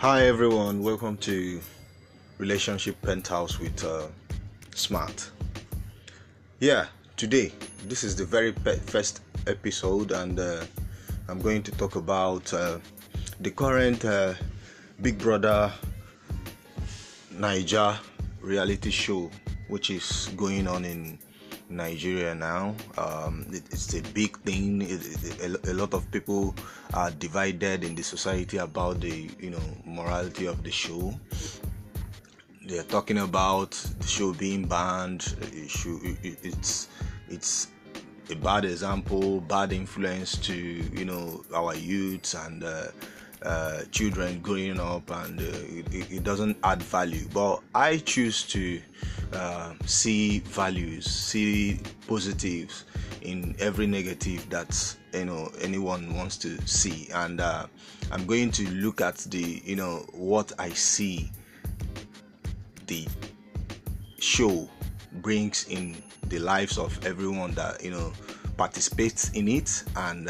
Hi everyone, welcome to Relationship Penthouse with uh, Smart. Yeah, today this is the very pe- first episode, and uh, I'm going to talk about uh, the current uh, Big Brother Niger reality show, which is going on in Nigeria now. Um, it's a big thing. It, a, a, lot of people are divided in the society about the you know morality of the show. They are talking about the show being banned. Should, it's it's a bad example, bad influence to you know our youths and. Uh, Uh, children growing up and uh, it, it, doesn't add value. But I choose to uh, see values, see positives in every negative that you know anyone wants to see, and uh, I'm going to look at the you know what I see the show brings in the lives of everyone that you know participates in it and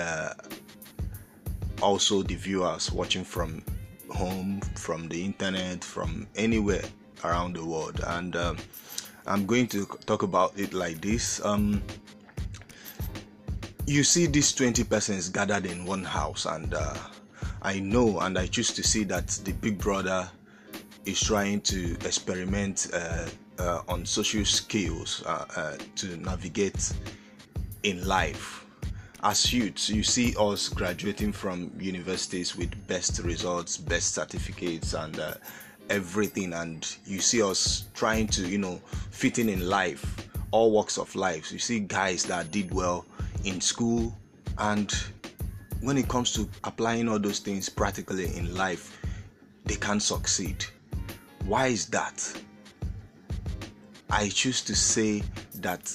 also the viewers watching from home, from the internet, from anywhere around the world. And um, I'm going to talk about it like this. Um, you see these 20 persons gathered in one house, and uh, I know and I choose to see that the big brother is trying to experiment uh, uh on social skills uh, uh, to navigate in life as youths, you see us graduating from universities with best results, best certificates, and uh, everything. And you see us trying to, you know, fitting in life, all works of life. You see guys that did well in school, and when it comes to applying all those things practically in life, they can succeed. Why is that? I choose to say that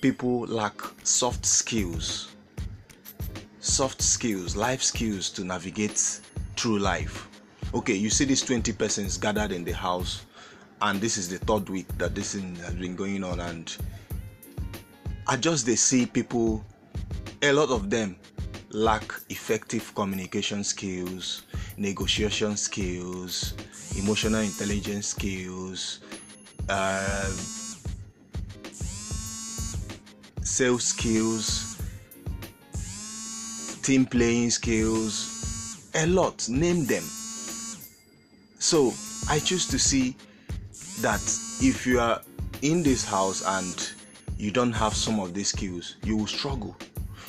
people lack soft skills soft skills, life skills to navigate through life. Okay, you see these 20 persons gathered in the house, and this is the third week that this thing has been going on, and I just they see people, a lot of them lack effective communication skills, negotiation skills, emotional intelligence skills, uh, sales skills team playing skills, a lot, name them. So I choose to see that if you are in this house and you don't have some of these skills, you will struggle.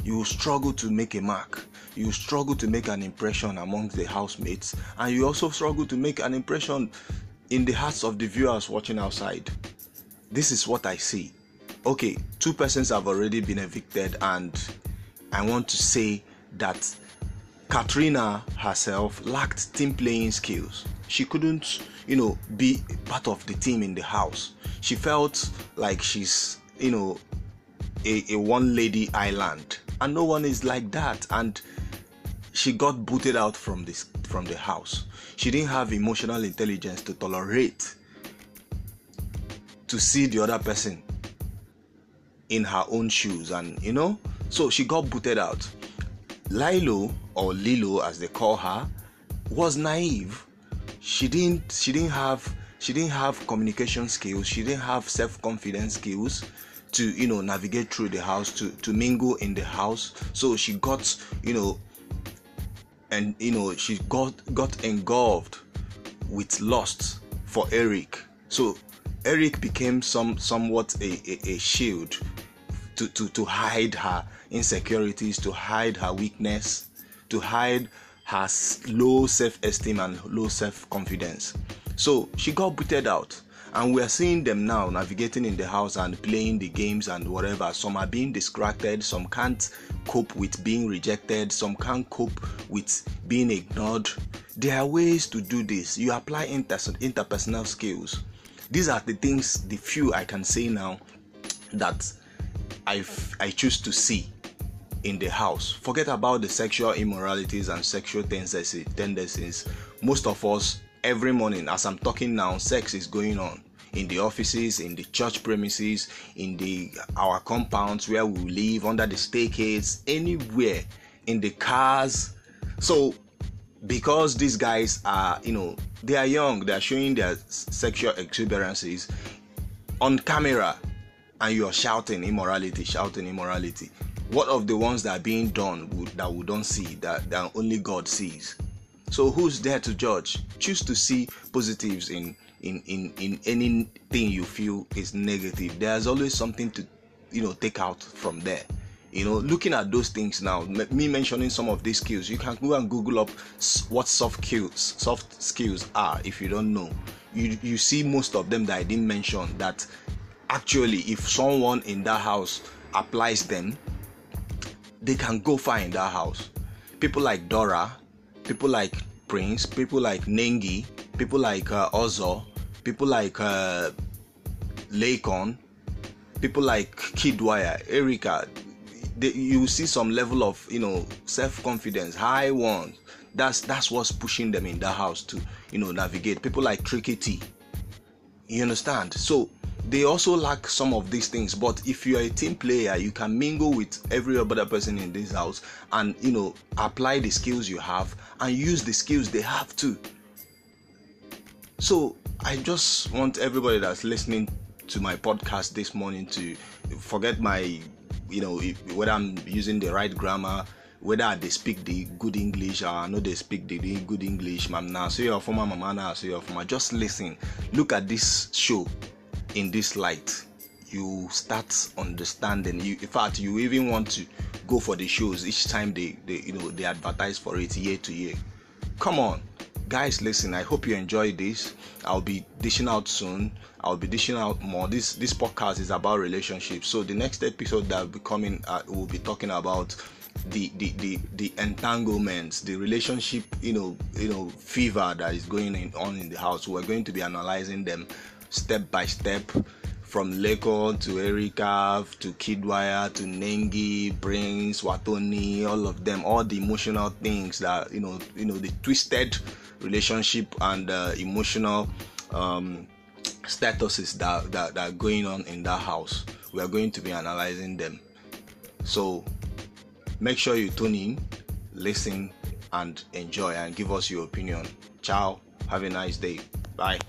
You will struggle to make a mark. You will struggle to make an impression among the housemates, and you also struggle to make an impression in the hearts of the viewers watching outside. This is what I see. Okay, two persons have already been evicted, and I want to say that Katrina herself lacked team playing skills. She couldn't, you know, be part of the team in the house. She felt like she's, you know, a, one lady island. And no one is like that. And she got booted out from from the house. She didn't have emotional intelligence to tolerate to see the other person in her own shoes and you know so she got booted out Lilo, or Lilo as they call her, was naive. She didn't she didn't have she didn't have communication skills, she didn't have self-confidence skills to you know navigate through the house to to mingle in the house. So she got you know and you know she got got engulfed with lust for Eric. So Eric became some somewhat a, a, a shield to, to, to hide her insecurities, to hide her weakness, to hide her low self esteem and low self confidence. So she got booted out. And we are seeing them now navigating in the house and playing the games and whatever. Some are being distracted, some can't cope with being rejected, some can't cope with being ignored. There are ways to do this. You apply interpersonal skills. These are the things, the few I can say now that i I choose to see in the house. Forget about the sexual immoralities and sexual tendencies. Most of us, every morning, as I'm talking now, sex is going on in the offices, in the church premises, in the our compounds where we live, under the staircase, anywhere, in the cars. So, because these guys are, you know, they are young, they are showing their sexual exuberances on camera, and you are shouting immorality, shouting immorality. what of the ones that are being done that we don't see that, only god sees so who's there to judge choose to see positives in in in in anything you feel is negative there's always something to you take out from there you know looking at those things now me mentioning some of these skills you can go and google up what soft skills soft are if you don't know you you see most of them that i didn't mention that actually if someone in that house applies them they can go far in that house. People like Dora, people like Prince, people like Nengi, people like uh, Ozo, people like uh, Lakon, people like Kidwire, Erika. They, you see some level of you know self-confidence, high ones. That's that's what's pushing them in that house to you know navigate. People like Tricky T. You understand? So they also lack some of these things but if you are a team player you can mingle with every other person in this house and you know apply the skills you have and use the skills they have too so i just want everybody that's listening to my podcast this morning to forget my you know whether i'm using the right grammar whether they speak the good English or I know they speak the good English, mam na so you're former mama, na so you're former. Just listen, look at this show, in this light you start understanding you in fact you even want to go for the shows each time they, they you know they advertise for it year to year come on guys listen i hope you enjoy this i'll be dishing out soon i'll be dishing out more this this podcast is about relationships so the next episode that will be coming uh, we'll be talking about the, the the the entanglements the relationship you know you know fever that is going on in the house we're going to be analyzing them step by step from Lekon to Erikav to Kidwire to Nengi, brins Watoni, all of them, all the emotional things that you know, you the twisted relationship and uh, emotional um, statuses that, are going on in that house. We are going to be analyzing them. So make sure you tune in, listen, and enjoy, and give us your opinion. Ciao. Have a nice day. Bye.